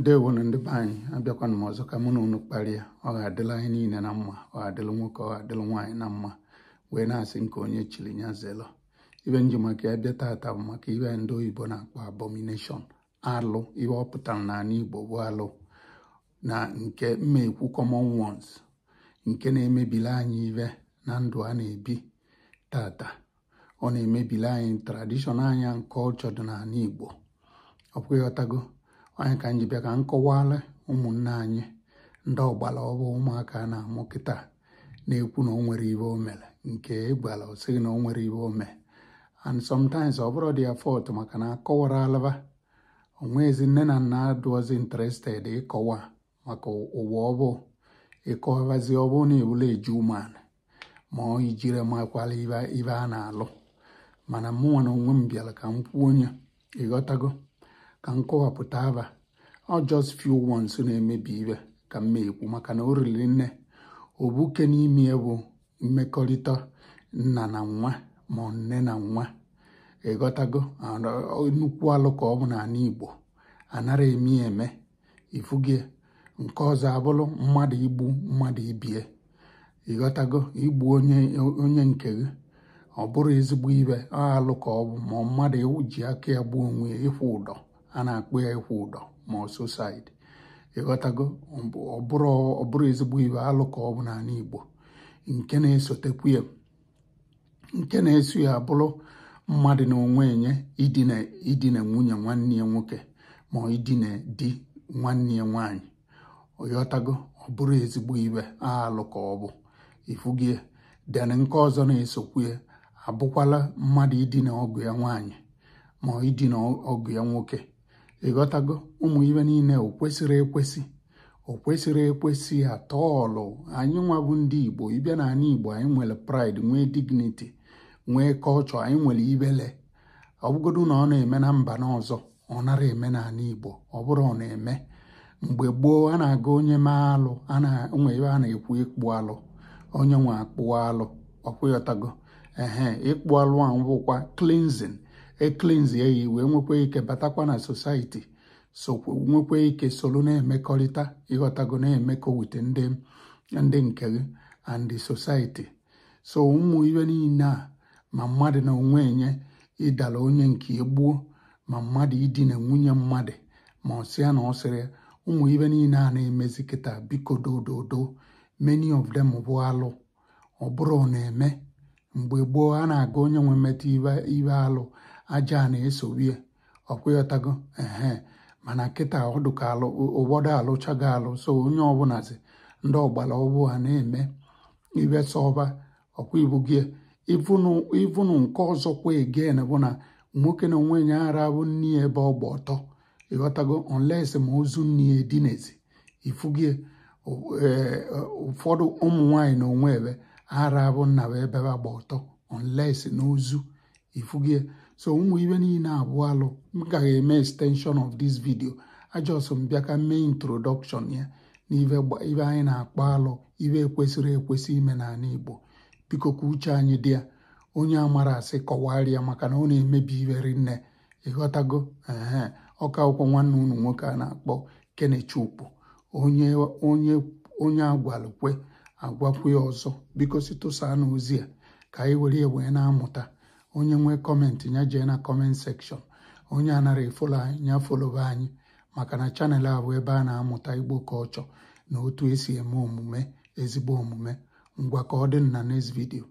ndewonu ndị be anyị abịakwana m ọzọ ka mụ na unu kparịa ọ ga-adịla anyị niile na mma ọ ga-adịla nwoke ọ ga-adịla nwaanyị na mma wee na-asị nke onye chiri ya zelo ibe nji maka ya bịa taata bụ maka ibe ndị oyibo na-akpọ abomination alụ ihe ọ pụtara n'ala igbo bụ alụ na nke mmekwu common ones nke na-emebili anyị ibe na ndụ a na-ebi tata ọ na-emebili anyị tradishọn anya nke ọchọdụ n'ala igbo ọkwụ ịghọtago anyị ka anyị bịa ka m kọwara ụmụnne anyị ndị ọgbara ọbụ ụmụaka na-amụ kịta na-ekwu na ọ nwere ibe o mere nke ịgbara o sịghị na o nwere ibe o mee and sometimes ọ bụrụ dị ya fọt maka na akọwara alaba onwezi nne na nna adụọzi interested ịkọwa maka ụwa ọbụ ịkọwazi ọbụ na ebule eju ụmụanụ ma ọ ijiri makwala ibe a na-alụ mana mụnwa na onwe m bịara ka m kwuo onye ịghọtago ka m kọwapụta aba ọ just few wons na-emebi ibe ka m ekwu maka na o riri nne obuke n'ime bụ mmekọrịta nna na nwa ma nne na nwa ịghọtago nnukwu alụ ka ọ bụ n'ala Igbo anara eme eme ifugie nke ọzọ abụrụ mmadụ igbu mmadụ ibie ịghọtago igbu onye nke gị ọ bụrụ ezigbo ibe alụ ka ọ bụ ma mmadụ ji aka ya gbuo onwe ya ịkwụ ụdọ a na-akpụ ya ịkwụ ụdọ ma ọsusaid ịghọtago ọ bụrụ ezigbo iwe alụ ọ bụ n'ala Igbo nke na-esotekwu ya nke na-eso ya abụrụ mmadụ na onwe enye idina nwunye nwanne ya nwoke ma idina di nwanne ya nwaanyị ịghọtago ọ bụrụ ezigbo iwe alụ ka ọ bụ ifugie den nke ọzọ na-esokwu ya abụkwala mmadụ idina ọgụ ya nwaanyị ma idina ọgụ ya nwoke ịghọtago ụmụ ibe niile o kwesịrị ekwesị o kwesịrị ekwesị atọ anyị nwabụ ndị igbo ịbịa na ala igbo anyị nwere praịd nwee dignity nwee kọlchọ anyị nwere ibele ọ bụgodu na ọ na-eme na mba n'ọzọ ọ nara eme na ala igbo ọ bụrụ ọ na-eme mgbe gboo a na-aga onye maa alụ nwe ebe a na-ekwu ịkpụ alụ onye nwe akpụ alụ ọkwụyọtago ehe ịkpụ alụ a bụkwa cleansing eklinzie ya wee nwekwa ike batakwa na sosaiti sokwa nwekwa ike solu na-emekọrịta ịghọtago na-emekọ wute ndị ndị nke gị and sosaiti so ụmụ iwe niile a ma mmadụ na onwe enye ịdara onye nke gboo ma mmadụ idina nwunye mmadụ ma ọ sịa na ọ sịrị ụmụ iwe niile a na-emezi kịta biko dododo many of them bụ alụ ọ bụrụ na-eme mgbe gboo a na-aga onye nwe mmetụ ibe alụ aja a na-esowe ọkwụyọtago ehe mana nkịta ọdụka alụ ụgbọdọ alụchago alụ so onye ọbụlazi ndị ọgbara ọgbụ ha na-eme ibe sọba ọkwa ibu nke ọzọ kwa egen bụ na nwoke e, na onwe ya ara bụ nni ebe ọgba ọtọ ịghọtago onles ma ozu nni edinezi ifugie ụfọdụ ụmụ nwanyị na onwe ebe ara bụ nna ebe agba ọtọ onles na ozu ifugie so ụmụ ibe niile abụọ alụ m gaghị eme extension of this video ajọs m bịa ka mee introduction ya na ibe anyị na-akpọ alụ ibe ekwesịrị ekwesị ime n'ala Igbo biko ka uche anyị dị ya onye amara asị kọwarịa maka na ọ na-emebi ibe nne ịghọtago ee ọka akwụkwọ nwanne unu nwoke a na-akpọ Kenechukwu onye agwalụkwe agwakwe ọzọ biko si na ozi a ka anyị were wee na-amụta onye nwee kọmentị ya jee na kọment sekshọn onye anara efolo anyị ya folo anyị maka na chanel a bụ ebe a na-amụta igbo ọchọ na otu esi eme omume ezigbo omume ngwa ka ọ dị na next vidio.